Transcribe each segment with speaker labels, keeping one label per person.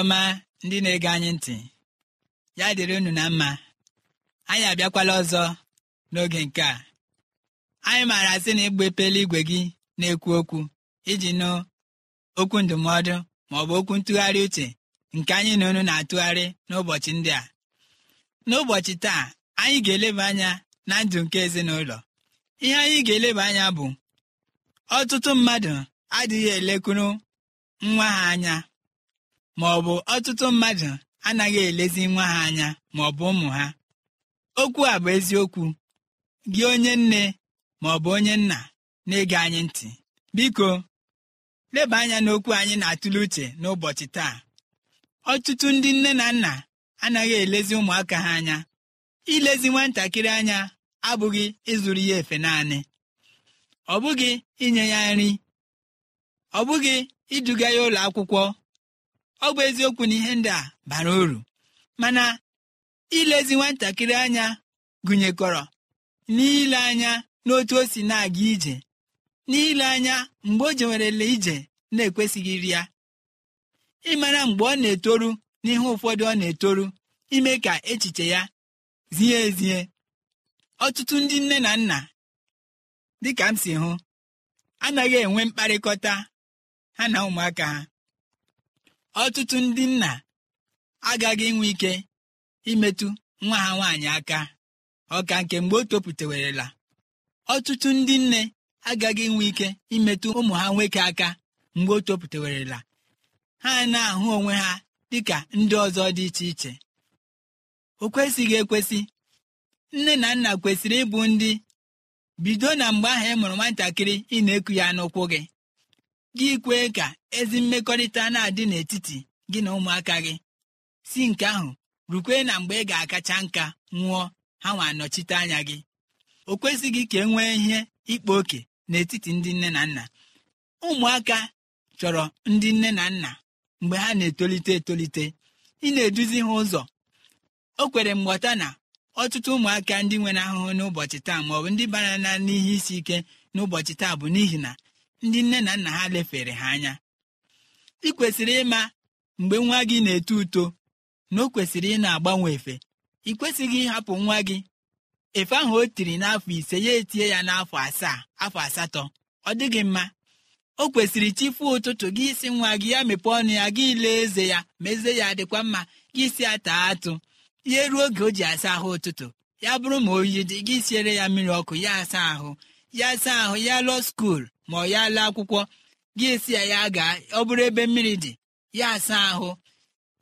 Speaker 1: ọma ndị na-ege anyị ntị ya dịrị unu na mma anyị abịakwala ọzọ n'oge nke a anyị maara sị na ịgba epele igwe gị na-ekwu okwu iji nụ okwu ndụmọdụ ma ọ bụ okwu ntụgharị uche nke anyị na unu na-atụgharị n'ụbọchị ndị a n'ụbọchị taa anyị ga-eleba anya na ndụ nke ezinụlọ ihe anyị ga-eleba anya bụ ọtụtụ mmadụ adịghị elekwuru nwa ha anya ma ọ bụ ọtụtụ mmadụ anaghị elezi nwa ha anya ma ọ bụ ụmụ ha okwu a bụ eziokwu gị onye nne ma ọ bụ onye nna na-ege anyị ntị biko leba anya n'okwu anyị na-atụle uche n'ụbọchị taa ọtụtụ ndị nne na nna anaghị elezi ụmụaka ha anya ilezi nwatakịrị anya abụghị ịzụrụ ya efe naanị ọ bụghị inye ya nri ọ bụghị iduga ya ụlọ akwụkwọ ọ bụ eziokwu na ihe ndị a bara uru mana ilezi nwatakịrị anya gụnyekọrọ n'ile anya n'otu o si na-aga ije n'ile anya mgbe o jewerela ije na-ekwesịghị iri ya ịmara mgbe ọ na-etoru n'ihe ụfọdụ ọ na-etoru ime ka echiche ya zie ezie ọtụtụ ndị nne na nna dịka m si hụ anaghị enwe mkparịkọta ha na ụmụaka ha ọtụtụ ndị nna agaghị enwe ike imetụ nwa ha nwaanyị aka ọka nke mgbe o ọtụtụ ndị nne agaghị inwe ike imetụ ụmụ ha nwoke aka mgbe o topụtewerela ha na-ahụ onwe ha dị ka ndị ọzọ dị iche iche o kwesịghị ekwesị nne na nna kwesịrị ịbụ ndị bido na mgbe ahụ ị e mụrụ nwatakịrị ị na-eku ya n'ụkwụ gị gị kwee ka ezi mmekọrịta na-adị n'etiti gị na ụmụaka gị si nke ahụ rukwe na mgbe ị ga-akacha nka nwụọ ha nwa anọchite anya gị o kwesịghị ka e nwee ihe ịkpa oke n'etiti ndị nne na nna ụmụaka chọrọ ndị nne na nna mgbe ha na-etolite etolite ị na-eduzi ha ụzọ o kwere mgbọta na ọtụtụ ụmụaka ndị nwere ahụhụ n'ụbọchị taa maọbụ ndị bara n'ihe isi ike n'ụbọchị taa bụ n'ihi na ndị nne na nna ha lefere ha anya ị kwesịrị ịma mgbe nwa gị na-eto uto na o kwesịrị ị na-agbanwe efe ị kwesịghị ịhapụ nwa gị efe ahụ o tiri n'afọ ise ya etie ya n'afọ asaa afọ asatọ ọ dịghị mma o kwesịrị chifu ụtụtụ gị isi nwa gị ya mepee ọnụ ya gị lee eze ya mezie ya dịkwa mma gị si ata atụ ya ruo oge o ji asa ahụ ụtụtụ ya bụrụ ma oyi dị gị siere ya mmiri ọkụ ya asa ahụ ya saa ahụ ya lụọ skuul ma ọ ya laa akwụkwọ gị esi ya ya gaa ọ bụrụ ebe mmiri dị ya saa ahụ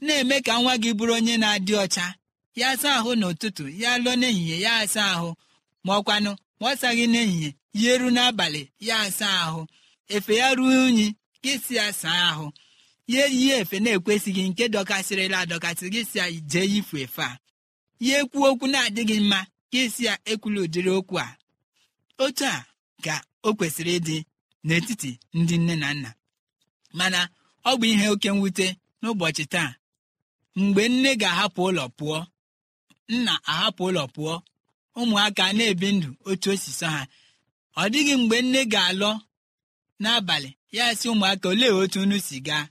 Speaker 1: na-eme ka nwa gị bụrụ onye na-adị ọcha ya saa ahụ n'ụtụtụ ya lụọ n'ehihie ya asa ahụ ma ọkwanụ ma ọ saghị n'ehihie ya eru n'abalị ya asa ahụ efe ya ruo unyi gị si ya saa ahụ ya eyi efe na-ekwesịghị nke dọkasịrịla adọkasị gị si ya jee yifu efe a ya ekwu okwu na-adịghị mma gị si ya ekwula ụdịrị okwu a otu a ka o kwesịrị ịdị n'etiti ndị nne na nna mana ọ bụ ihe oke mwute n'ụbọchị taa mgbe nne ga-ahapụ ụlọ pụọ nna ahapụ ụlọ pụọ ụmụaka na-ebi ndụ otu osiso ha ọ dịghị mgbe nne ga-alọ n'abalị ya si ụmụaka olee otu unu si gaa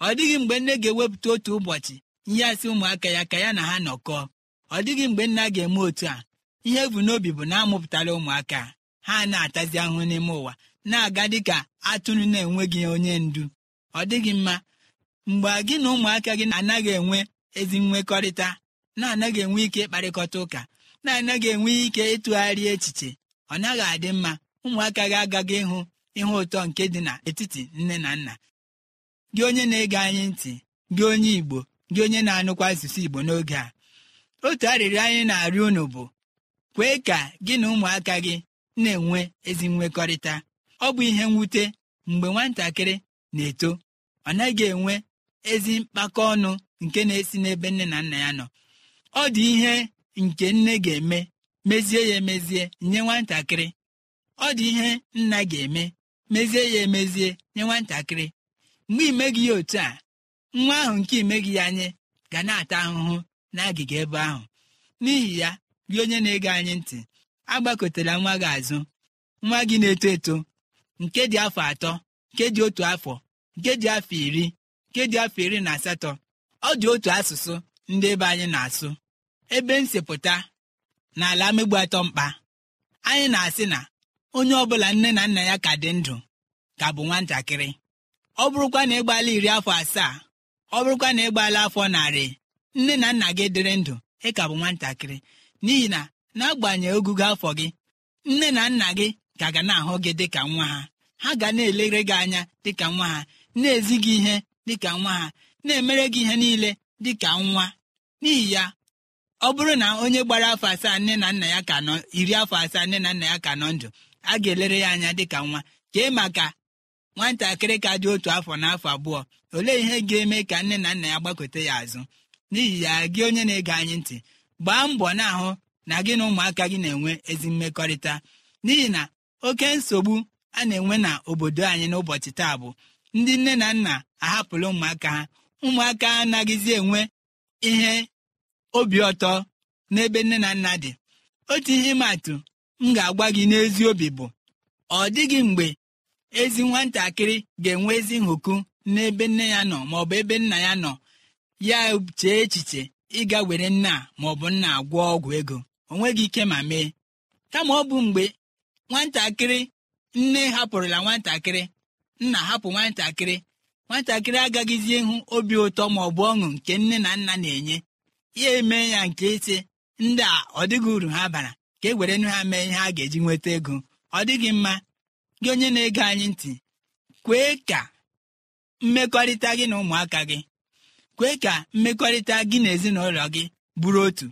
Speaker 1: ọ dịghị mgbe nne ga-ewepụta otu ụbọchị ihe asị ụmụaka ya ka ya na ha nọkọọ ọ dịghị mgbe nna ga-eme otu a ihe bụ n'obi bụ na amụpụtara ụmụaka ha na-atazi ahụ n'ime ụwa na-aga dịka atụrụ na-enweghị onye ndu ọ dịghị mma mgbe gị na ụmụaka gị anaghị enwe ezi nwekọrịta na-anaghị enwe ike ịkparịkọta ụka na-anaghị enwe ike ịtụgharị echiche ọ naghị adị mma ụmụaka gị agaghị ịhụ ihe ụtọ nke dị n'etiti nne na nna gị onye na-ege anyị ntị gị onye Igbo gị onye na-anụkwa asụsụ Igbo n'oge a otu arịrịọ anyị na-arịọ unu bụ kwee ka gị na ụmụaka gị na-enwe ezi nwekọrịta ọ bụ ihe mwute mgbe nwatakịrị na-eto ọ naghị enwe ezi mkpakọ ọnụ nke na-esi n'ebe nne na nna ya nọ ọ dị ihe nke nne ga-eme mezie ya emezie nye nwatakịrị ọ dị ihe nna ga-eme mezie ya emezie nye nwatakịrị mgbe imeghị ya otu a nwa ahụ nke imeghị ya anyị ga na-ata ahụhụ n'agịga ebe ahụ n'ihi ya gị onye na-ege anyị ntị agbakọtara nwa gị azụ nwa gị na-eto eto nke dị afọ atọ nke dị otu afọ nke dị afọ iri nke dị afọ iri na asatọ ọ dị otu asụsụ ndị ebe anyị na-asụ ebe nsepụta na ala megbu atọ mkpa anyị na-asị na onye ọbụla nne na nna ya ka dị ndụ ka bụ nwatakịrị ọ bụrụkwa na ịgbaala iri afọ asaa ọ bụrụkwa na ịgbaala afọ narị nne na nna gị dịrị ndụ ị ka bụ nwatakịrị n'ihi na n'agbanyeghị ogugo afọ gị nne na nna gị ka ga na-ahụ gị dịka nwa ha ha ga na-elere gị anya dịka nwa ha na-ezi gị ihe dịka nwa ha na-emere gị ihe niile dịka nwa n'ihi ya ọ bụrụ na onye gbara afọ asaa nne na nna ya ka nọ iri afọ asaa nne na nna ya ka nọ ndụ a ga-elere ya anya dịka nwa kee maka nwatakịrị ka dị otu afọ na afọ abụọ olee ihe ga-eme ka nne na nna ya gbakọta ya azụ n'ihi ya gị onye na-ege anyị ntị gbaa mbọ na-ahụ na gị na ụmụaka gị na-enwe ezi mmekọrịta n'ihi na oke nsogbu a na-enwe na obodo anyị n'ụbọchị taa bụ ndị nne na nna ahapụla ụmụaka ha ụmụaka anaghịzi enwe ihe obi ọtọ n'ebe nne na nna dị otu ihe matụ m ga-agwa gị n'ezi obi bụ ọ dịghị mgbe ezi nwatakịrị ga-enwe ezi nhụkụ n'ebe nne ya nọ maọbụ ebe nna ya nọ ya chee echiche ịga were nna maọbụ nna gwọ ọgwụ ego onweghị ike ma mee kama ọ bụ mgbe nwatakịrị nne hapụrụla nwatakịrị nna hapụ nwatakịrị nwatakịrị agaghịzi ịhụ obi ụtọ ma ọ bụ ọṅụ nke nne na nna na-enye ya eme ya nke ise ndị a ọ dịghị uru ha bara ka e were nu ha mee ihe a ga-eji nweta ego ọ dịghị mma gị onye na-ege anyị ntị kwee ka mmekọrịta gị na ụmụaka gị kwee ka mmekọrịta gị na ezinụlọ gị bụrụ otu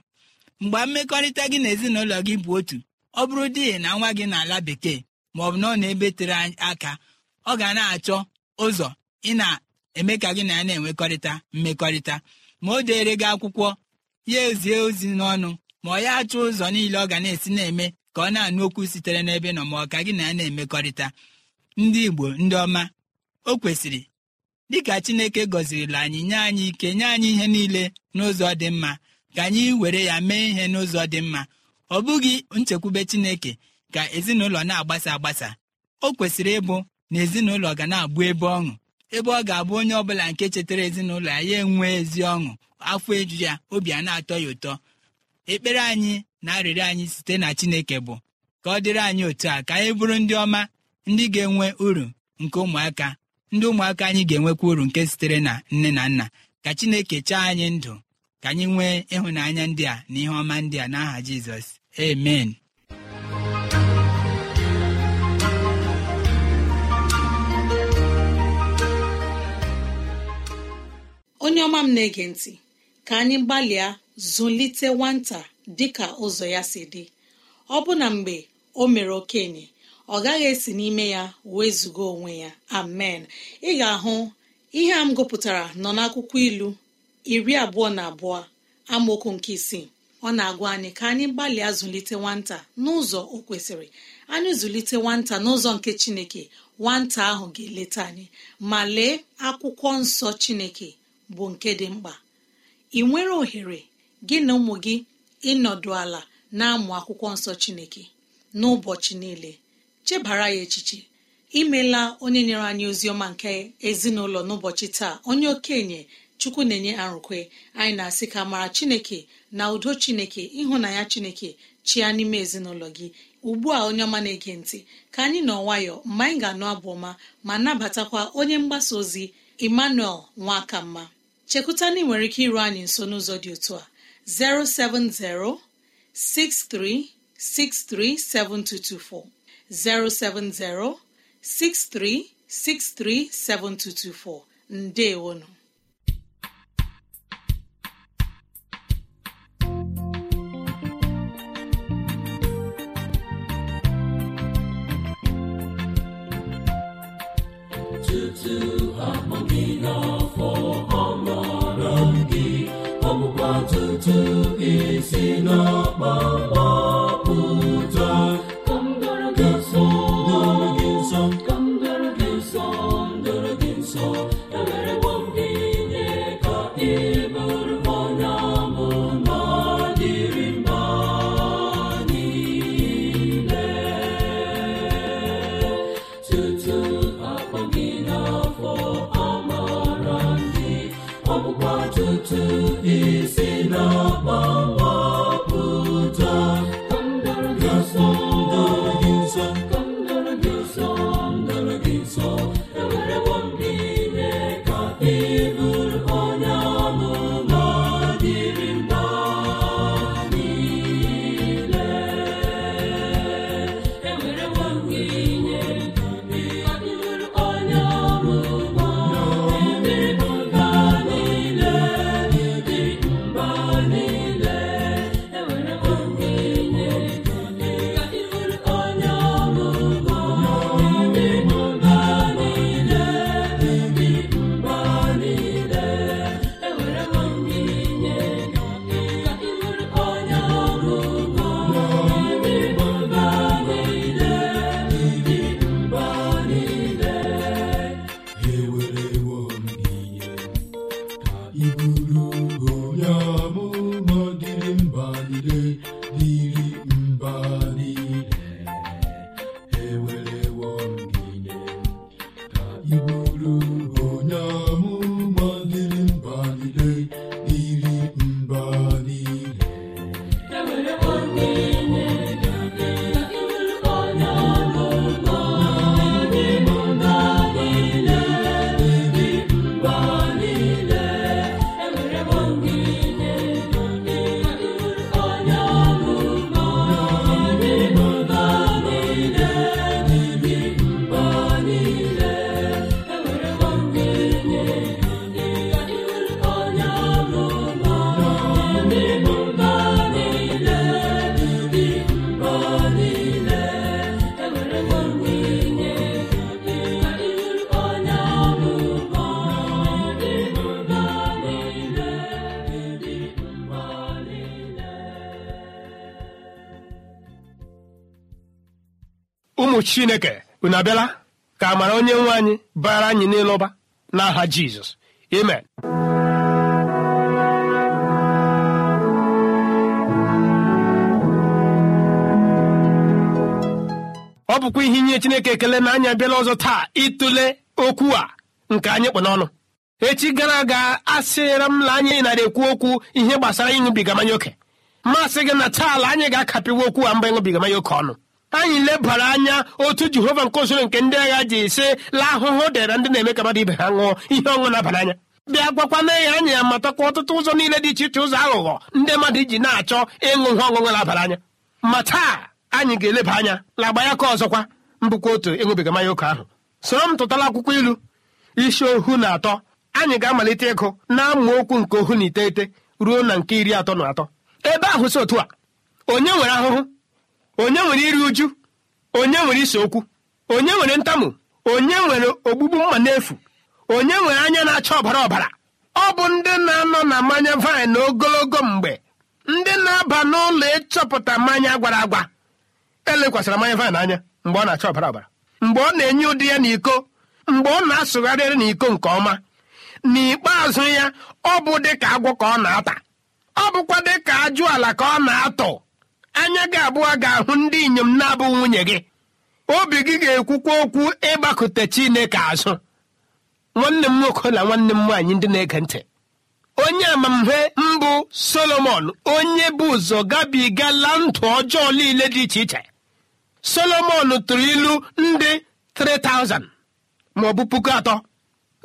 Speaker 1: mgbe mmekọrịta gị na ezinụlọ gị bụ otu ọ bụrụ di na nwa gị n'ala bekee ma ọ bụ na ọ na-ebe tere aka ọ ga na-achọ ụzọ ị na-eme ka gị na ya na-enwekọrịta mmekọrịta ma o deere gị akwụkwọ ya ezie ozi n'ọnụ ma ọ ya achọ ụzọ niile ọ ga na-esi na-eme ka ọ na-anụ okwu sitere n'ebe nọ ma ọ ka gị na ya na-emekọrịta ndị Igbo ndị ọma o kwesịrị dịka Chineke gọzirila anyị nye anyị ike nye anyị ihe niile n'ụzọ dị mma ka anyị were ya mee ihe n'ụzọ dị mma ọ bụghị nchekwube chineke ka ezinụlọ na-agbasa agbasa o kwesịrị ịbụ na ezinụlọ ga na-abụ ebe ọṅụ ebe ọ ga-abụ onye ọ bụla nke chetara ezinụlọ ya ya enwee ezi ọṅụ afọ eju ya obi a na-atọ ya ụtọ ekpere anyị na arịrịọ anyị site na chineke bụ ka ọ dịrị anyị otu a ka anyị bụrụ ndị ọma ndị ga-enwe uru nke ụmụaka ndị ụmụaka anyị ga-enwekwa uru nke sitere na nne na nna ka chineke chaa anyị ndụ ka anyị nwee ịhụnanya ndị a na ihe ọma ndị a n'aha jizọs amen
Speaker 2: onye ọma m na-ege ntị ka anyị gbalịa zụlite nwata dịka ụzọ ya si dị ọ bụ na mgbe o mere okenye ọ gaghị esi n'ime ya wezụga onwe ya amen ị ga-ahụ ihe a m gụpụtara nọ n'akwụkwọ ilu iri abụọ na abụọ amaokwu nke isii ọ na-agwa anyị ka anyị gbalịa zụlite nwata n'ụzọ o kwesịrị anyị zụlite nwata n'ụzọ nke chineke nwata ahụ ga-eleta anyị ma lee akwụkwọ nsọ chineke bụ nke dị mkpa ị nwere ohere gị na ụmụ gị ịnọdụ ala na-amụ akwụkwọ nsọ chineke n'ụbọchị niile chebara ya echiche imela onye nyere anyị ozi ọma nke ezinụlọ n'ụbọchị taa onye okenye chukwu na-enye arụkwe anyị na-asị ka mara chineke na udo chineke ịhụnanya chineke chia n'ime ezinụlọ gị ugbu a onye ọma na-ege ntị ka anyị nọ nwayọ mgbe anyị ga-anụ abụ ọma ma nabatakwa onye mgbasa ozi emmanuel nwakamma mma na ị nwere ike iru anyị nso n'ụzọ dị otu a 07063637224 nde ndewonu
Speaker 3: esi n'ọkpọkpọ
Speaker 4: chineke unu abịala ka amara onye nwe anyị bara anyị n'ịlụba n'aha jizọs amen ọ bụkwa ihe inye chineke ekele na anyị abịala ọzọ taa ịtụle okwu a nke anyị kpụ n'ọnụ echi gara aga asịra m na anyị nara ekwu okwu ihe gbasara ịṅụbiga mmanya oke mmasị gị na taa anyị ga-akapịwa okwu a mba ịṅụbiga mmanya oke ọnụ anyị lebara anya otu jehova nke usoro nke ndị agha ji ise la ahụhụ dịra ndị na-eme ka mmadụ ibe ha ṅụọ ihe ọṅụ na-aba anya bịa gwakwana ya anya ya matakwa ọtụtụ ụzọ niile dị iche iche ụzọ aghụghọ ndị mmadụ iji na-achọ ịṅụ ihe ọṅụṅụ na anya ma taa anyị ga-eleba anya lagba ya ka ọzọkwa mbụkwa otu ịṅụbiga mmanya oke ahụ soro m tụtala akwụkwọ ilu isi ohu na atọ anyị ga-amalite ịgụ na-amụ okwu nke ohu na iteghete ruo na nke iri atọ na atọ ebe ahụ si otu a onye nwere ahụhụ onye nwere iri uju onye nwere ise okwu onye nwere ntamu onye nwere ogbugbu mma n'efu onye nwere anya na-acha ọbara ọbara ọ bụ ndị na-anọ na mmanya vaịn ogologo mgbe ndị na-aba n'ụlọ ịchọpụta mmanya gwara agwa elekwasịra mmanya vaịn anya mgbe ọ na-acha ọbara ọbara mgbe ọ na-enye ụdị ya n'iko mgbe ọ na-asụgharịrị n'iko nke ọma n'ikpeazụ ya ọ bụ dịka agwọ ka ọ na-ata ọ bụkwa dịka ajụ ala ka ọ na-atụ anya gị abụọ ga-ahụ ndị inyom na-abụ nwunye gị obi gị ga-ekwukwa okwu ịgbakọte Chineke azụ nwanne m nwoke na nwanne m nwaanyị ndị na-ege ntị onye amamhe mbụ Solomon onye bụ ụzọ gabigala ndụ ọjọọ niile dị iche iche Solomon tụrụ ilu ndị 3000 ma ọ bụ puku atọ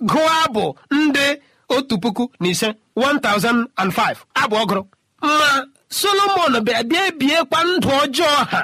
Speaker 4: gụọ abụ ndị otu puku na ise 1005 abụ ọgụrụ mma. solomon bịa bịa ebiekwa ndụ ọjọọ ha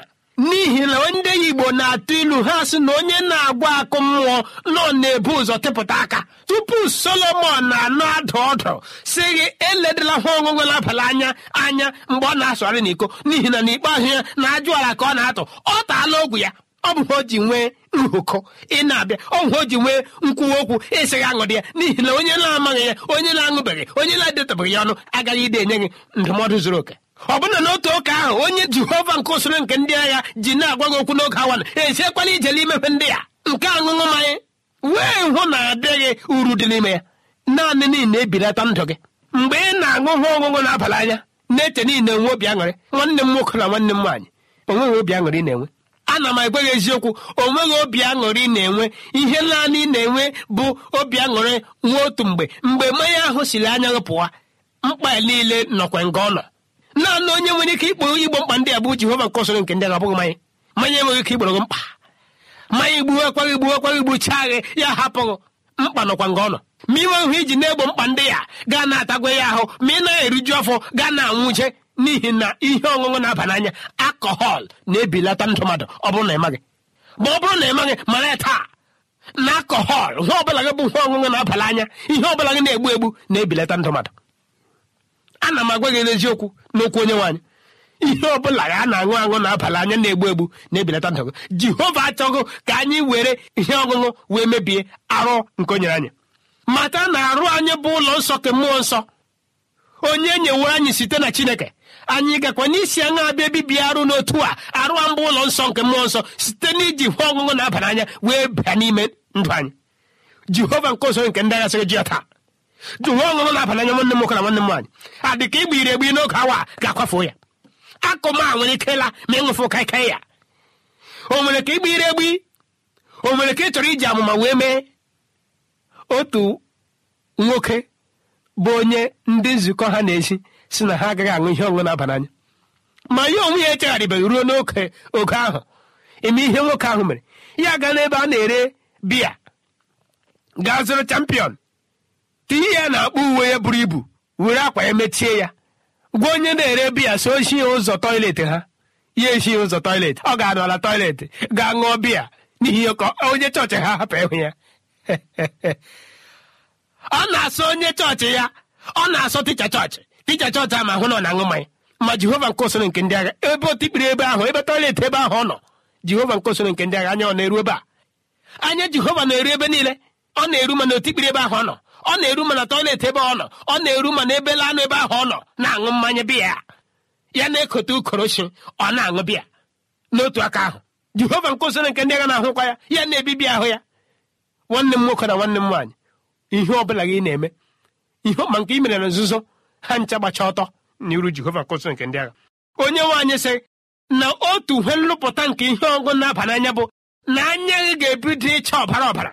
Speaker 4: n'ihi na ndị igbo na-atụ ilu ha sị na onye na-agwa akụ mmụọ nọ na-ebu ụzọ tepụta aka tupu solomon na-anọ adụ ọdụ si gị eledịla ha ọṅụṅụ labalị anya anya mgbe ọ na-asụgharị n'iko n'ihi na n'ikpeazụ ya na ajụala ka ọ na-atụ ọ taala ogwu ya ọ bụ o ji nwee nhụkọ ị na-abịa ọgwụ o ji nwee nkwuwa okwu ịsịghị aṅụdị ya n'ihi na onye na-amaghị ya onye na-aṅụbeghị onye na-edetabeghị ya ọnụ agaghị ide enye gị ndụmọdụ zuru oke ọbụna n'otu ụka ahụ onye jehova nke usoro nke ndị agha ji na-agwa gị okwu n'oge awa esiekwala ije n'imepe ndị ya nke aṅụṅụ mmanya wee hụ na adịghị uru dị n'ime ya naanị niile ebirata ndụ gị mgbe ị na-aṅụ hụ ọṅụṅụ na-abalị anya na-eche niile nwe obi aṅụrị nwanne m nwoke na nwanne m nwaanyị onweghị obi aṅụrị ị na-enwe ana m gị eziokwu onweghị obi aṅụrị na-enwe ihe naanị na-enwe bụ obi aṅụrị nwa otu mgbe mgbe mmanya ahụ siri anya pụwa mkpa niile nọkwa nga ọ nọ naanị onye nwere ike ikporo igbo mkpa ndị a bụ jehova nke ọsọrọ nke ndị a abụghị mmanya mmanya enweghị ike igboro gị mkpa mmanya igbuwe akwaghị igbuwe akwaghị igbucha agha ya hapụghị mkpa nọkwa nga ọ nọ ma inwe nhụ iji na-egbo mkpa ndị ya gaa na-atagwa ya ahụ ma ị na-eriju afọ gaa na-anwụje n'ihi na ihe ọṅụṅụ na-aba n'anya akọhọl na-ebilata ndụ mmadụ ọ bụrụ na ị maghị ma ọ bụrụ na ị mara ya taa na akọhọl ihe ọbụla gị bụ nwa ọṅụṅụ na-aba anya ihe ọbụla gị na-egbu egbu na-ebilata ndụ mmadụ ana m agwa gị n'eziokwu n'okwu onye nwaanyị ihe ọ bụla a na-aṅụ aṅụ na-abalị anya na-egbu egbu na-ebelata ndọgụ jehova achọghị ka anyị were ihe ọṅụṅụ wee mebie arụ nke onyere anyị mata na arụ anyị bụ ụlọ nsọ ke mmụọ nsọ onye nyewo anyị site na chineke anyị gakwa n'isi aṅụ abịa bibie arụ n'otu a arụ mbụ ụlọ nsọ nke mmụọ nsọ site na iji ihe ọṅụṅụ na abalị anya wee bịa n'ime ndụ anyị jehova nke ọzọ nke ndị sịrị ji ya taa jụ nwa ọṅụṅụ na-aba anya nwanne m nwoke na nwanne m nwaanyị adị ka igba iri egbi n'oge awa ga-akwafu ya akụma nwere ikela ma ịṅụfụ kaikai ya o nwere ka igba egbi o nwere ka ị chọrọ iji amụma wee mee otu nwoke bụ onye ndị nzukọ ha na ezi si na ha agaghị aṅụ ihe ọṅụṅụ na-aba ma ya onwe ya echegharịbeghị ruo n'oke oge ahụ eme ihe nwoke ahụ mere ya gaa n'ebe a na-ere biya gaa zụrụ champion iyi ya na-akpọ uwe ya buru ibu were akwa ya mechie ya gwa onye na-ere biya so shi ya ụzọ tọiletị ha ya eshi ụzọ tọiletị ọ ga-anọ ala ga-aṅụọ ṅụọ biya n'ihi ka onye chọọchị ha hapụ ịhụ ya ọ na-asọ onye chọọchị ya ọ na-asọ ticha chọọchị ticha chọọchị a ma hụ na ọ na aṅụ mmanya ma jehova nke osoro nke ndị agha ebe otikpiri ebe ahụ ebe tọiletị ebe ahụ ọ nọ jehova nke osoro nke ndị agha anya ọ na-eru ebe a anya jehova na-eru ebe niile ọ na-eru mana otikpiri ebe ahụ ọ nọ ọ na-eru mana tọilet ebe ọ nọ ọ na-eru mana ebe lanụ ebe ahụ ọ nọ na-aṅụ mmanya biya ya na-ekote ukorochi ọ na-aṅụ biya n'otu aka ahụ jehova nkụziri nke ndị agha na-ahụkwa ya ya na-ebibi ahụ ya nwanne m nwoke na nwanne m nwaanyị ihe ọ bụla gị na-eme ihe ọma nke mere na nzuzo ha ncha gbacha ọtọ n'iru jehova nkụziri nke ndị agha onye nwaanyị sị na otu uhe nlụpụta nke ihe ọgụ na-aba n'anya bụ na anya gị ga-ebido ịcha ọbara ọbara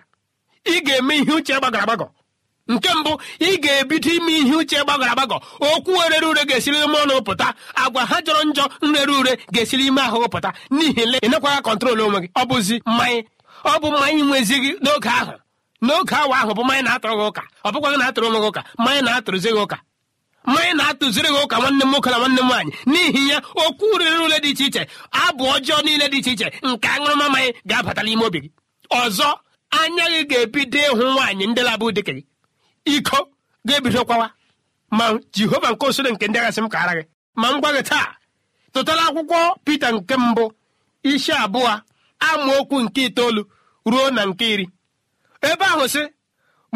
Speaker 4: ị ga-eme ihe uche gbagọrọ agbagọ nke mbụ ị ga-ebido ime ihe uche gbagọrọ agbagọ okwu orere ure ga-esiri ime ọnụ pụta agwa ha jọrọ njọ nrere ure ga-esiri ime ahụ pụta n'ihi le ịnekwaghị kọntrol onwe gị ọ bụzi mmanya ọ bụ mmanya nwezighị n'oge ahụ n'oge awa ahụ bụ mmanya na-atụrụ gị ụka ọ bụkwa gị na-atụrụ onwe gị ụka mmanya na-atụrụzi gị ụka mmanya na-atụziri gị ụka nwanne m nwoke na nwanne m nwaanyị n'ihi ya okwu rere ure dị iche iche abụ ọjọọ niile dị iche iche nke aṅụrụma mmanya ga-abata n'ime obi gị ọzọ anya gị ga-ebido ịhụ nwaanyị ndị labụ dịka gị iko ga-ebido ma jehova nke osoro nke ndị agasị m ka ara gị ma m gwa gị taa tụtara akwụkwọ pete nke mbụ isi abụọ amaokwu nke itoolu ruo na nke iri ebe ahụ sị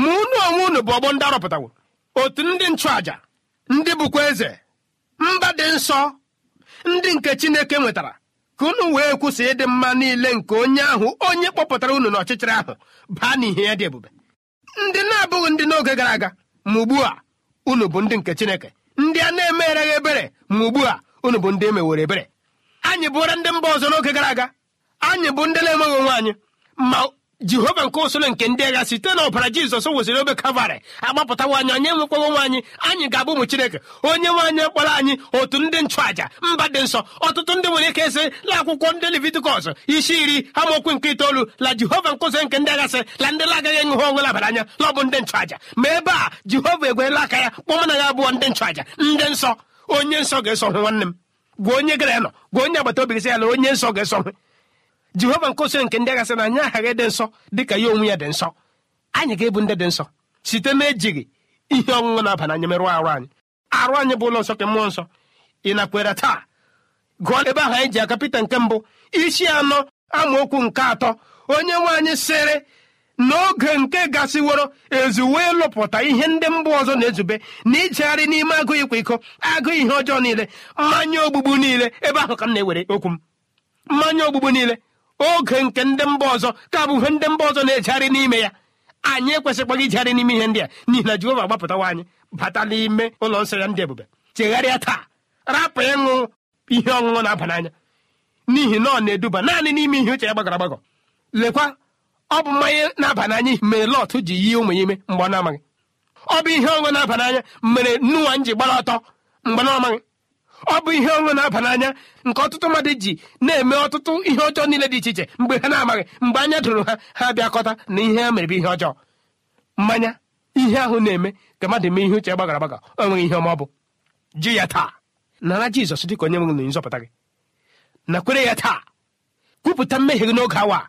Speaker 4: ma unu onwe unu bụ ọgbọ ndị arọpụtawo otu ndị nchụaja ndị bụkwa eze mba dị nsọ ndị nke chineke nwetara ka unu wee kwụsị ịdị mma niile nke onye ahụ onye kpọpụtara unu n'ọchịchịrị ahụ baa n'ihe ya dị ebube ndị na-abụghị ndị n'oge gara aga ma ugbu a unu bụ ndị nke chineke ndị a na-emereghị eme ebere ma ugbu a unu bụ ndị emewere ebere anyị bụra ndị mba ọzọ n'oge gara aga anyị bụ ndị na-emeghị onwe anyị ma jehova nke usoro nke ndị agha site na ọbara jizọs wụsịrị obe kalvarị agbapụtawa anyị onye nwekwawa nwaanyị anyị ga-abụ ụmụ chineke onye nwaanyị kpọrọ anyị otu ndị nchụàja mba dị nsọ ọtụtụ ndị nwere ike esi la akwụkwọ ndị levitikọs isi iri amaokwu nke itoolu la jehova nkụzi nke ndị aghasị la ndị agaghị enwe ha onwe labara anya lọbụ bụ ndị nchụàja ma ebe a jehova egwerela aka ya kpọma na ya abụọ ndị nchụàja ndị nsọ onye nsọ ga-eso nwanne m gwa onye gara ya nọ gwa onye agbata obi gị sị ya na onye nsọ ga-eso jehova nke oso nke ndị sị na anyị aghaghị dị nsọ dị ka ya onwe ya dị nsọ anyị ga-ebu ndị dị nsọ site na-ejighị ihe ọṅụṅụ na-aba n'anya merụọ arụ anyị arụ anyị bụ ụlọ nsọ ke mmụọ nsọ ị nakweere taa gụọ ebe ahụ anyị ji aka pita nke mbụ isi anọ amaokwu nke atọ onye nwe anyị sịrị n'oge nke gasịworo ezuwe lụpụta ihe ndị mba ọzọ na-ezube na ijegharị n'ime agụ ịkwa iko agụ ihe ọjọọ niile mmanya ogbugbu niile ebe ahụ ka m na-ewere okwu m mmanya ogbugbu niile oge nke ndị mba ọzọ ka bụ ndị mba ọzọ na-ejegharị n'ime ya anyị ekwesịkwaghị ijegharị n'ime ihe ndị a n'ihi na Jehova gbapụtawa anyị bata n'ime ụlọ nsọ ya ndị ebube chegharịa taa rapụ ịṅụ ihe ọṅụṅụ na-aba n'anya n'ihi na ọ na-eduba naanị n'ime ihe uche ya gbagọrọ agbagọ lekwa ọ bụ mmanya na-aba n'anya mere Lọt ji yie ụmụ ya ime mgbe ọ na-amaghị ọ bụ ihe ọṅụṅụ na-aba n'anya mere nnuwa m ji gbara ọtọ mgbe ọ na ọ bụ ihe ọṅụ na-aba n'anya nke ọtụtụ mmadụ ji na-eme ọtụtụ ihe ọjọọ niile dị iche iche mgbe ha na-amaghị mgbe anya dụrụ ha ha bịakọta na ihe ha mere bụ ihe ọjọọ mmanya ihe ahụ na-eme ka mmadụ mee ihe uche gbagara agbaga o nweghị ihe ọma ọ bụ ji ya taa nara jizọs ka onye nwere nzọpụta gị nakwere ya taa kwupụta mmehie gị n'oge awa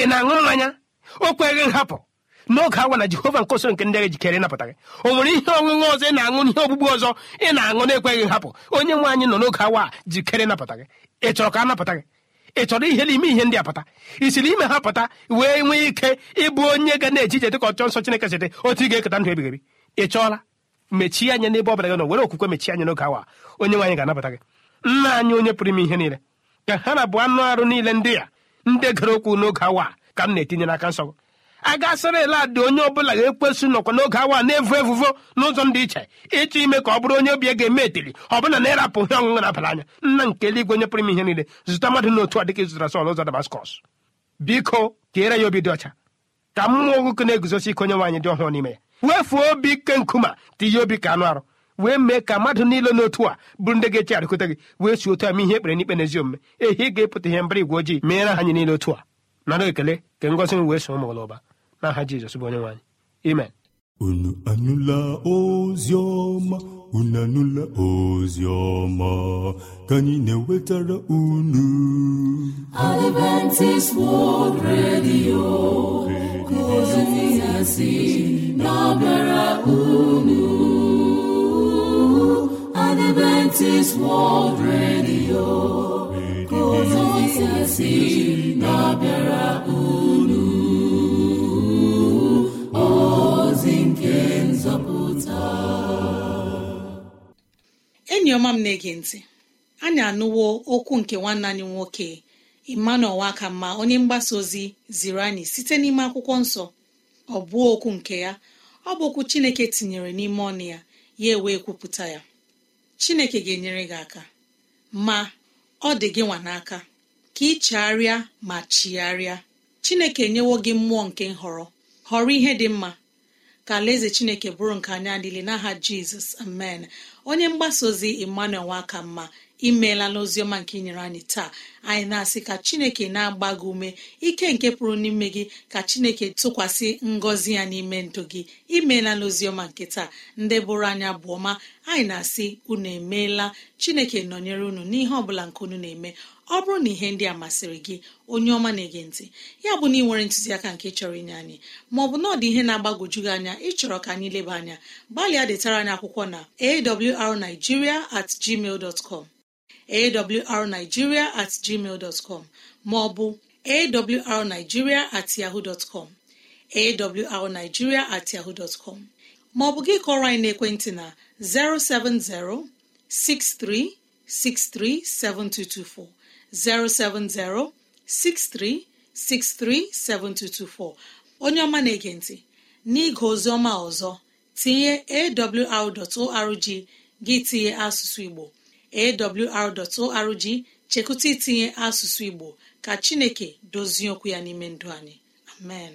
Speaker 4: ị na-aṅụrụ n'anya o kweghị nhapụ n'oge awa na jehova nke nke ndị agha jikere ịnapụta gị o nwere ihe ọṅụṅụ ọzọ ị na-aṅụ n'ihe ọgbụgbụ ọzọ ị na-aṅụ na-ekweghị hapụ onye nwe anyị nọ n'oge awa jikere ịnapụta gị ị chọrọ ka a napụta gị ị chọrọ ihe n'ime ihe ndị a pụta i siri ime ha pụta wee nwee ike ịbụ onye ga na-eji ije dịka ọchọ nsọ chineke site otu ị ga-eketa ndụ ebighị ebi ị chọọla mechie anya n'ebe ọ bụla gị nọ were okwukwe mechie anya n'oge awa onye nwaanyị ga-anabata gị nna anyị onye pụrụ ime ihe niile ka ha na abụ anụ arụ niile ndị a ndị gara okwu n'oge awa ka m na-etinye n'aka nsọ a gasịrị eladị onye ọbụla ga-ekwesị nọkwa n'oge awa na-evu evuvo n'ụzọ dị iche ịchọ ime ka ọ bụrụ onye obi ya ga-eme etiri ọ bụla na ịrapụ ihe ọṅụṅụ na-abara anya nna nke eluigwe onye pụrụ ime ihe niile zụta mmadụ n'otu a dịka ịzụtara Sọl ụzọ Damaskọs biko ka kere ya obi dị ọcha ka mmụọ nwoke na-eguzosi ike onye nwaanyị dị ọhụrụ n'ime ya wefuo obi ike nkuma tinye obi ka anụ arụ wee mee ka mmadụ niile n'otu a bụrụ ndị ga-eche arịkọta gị wee si otu a ma ihe ekpere n'ikpe n'ezi omume ehi ga-epụta ihe mbara igwe ojii meere anyị niile otu a nara ekele ka ngozi m wee so ụmụ ụba n'aha jizọs bụ onyenwe anyị Amen. unu anụla ozi ọma unu
Speaker 3: anụla ozi ọma ka anyị na-ewetara unu Adventist World Radio ka ozi ya si na-abịara unu Adventist World Radio ka ozi ya si na-abịara unu
Speaker 2: enyi ọma m na-ege ntị anyị anụwo okwu nke nwanne anyị nwoke emmanuel ma onye mgbasa ozi ziri anyị site n'ime akwụkwọ nsọ ọ bụ okwu nke ya ọ bụ okwu chineke tinyere n'ime ọnụ ya ya ewee kwupụta ya chineke ga-enyere gị aka ma ọ dị gị nwa n'aka ka ị ma chigharịa chineke enyewo gị mmụọ nke nhọrọ họrọ ihe dị mma ka alaeze chineke bụrụ nke anya adịle n'aha jizọs amen onye mgbasa ozi emmanuel nwaka mma imeela n'oziọma nke inyere anyị taa anyị na-asị ka chineke na-agba gị ume ike nke pụrụ n'ime gị ka chineke tụkwasị ngọzi ya n'ime ndụ gị imeela n'oziọma nke taa ndị bụrụ anya bụ ọma anyị na-asị unu emeela chineke nọnyere unu n'ihe ọbụla nke unu na-eme ọ bụrụ na ihe ndị a masịrị gị onye ọma na-ege ntị ya bụ na ị nwere ntụziaka nke chọrọ inye anyị maọbụ na ọ dị ihe na-agbagwoju gị anya ịchọrọ ka anyị leba anya gbalịa detara anyị akwụkwọ na awrnigeria at gmail dot com awrnigeria at gmail dot com maọbụ awrnigeria at yahoo dot com awrnigeria at yahoo dot com maọbụ gị kọrọ anyị naekwentị na 070 6363 7224 070-6363-7224 onye ọma na-ege ntị n'ịge oziọma ọzọ tinye awr.org gị tinye asụsụ igbo awr.org chekụta itinye asụsụ igbo ka chineke dozie okwu ya n'ime ndụ anyị amen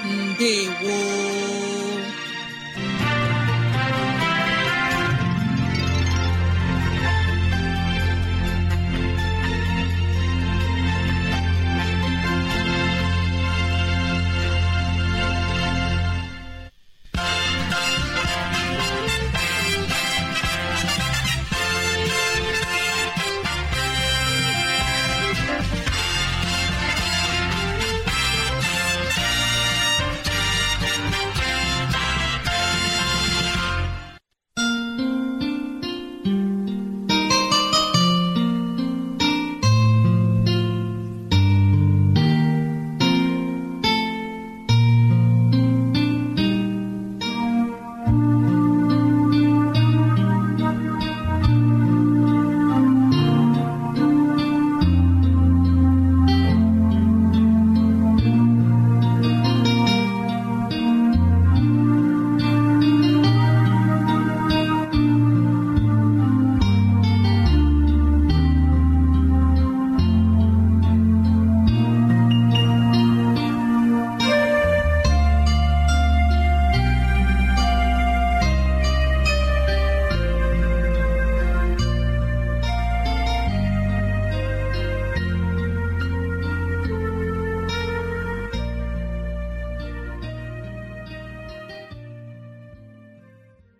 Speaker 2: ndewo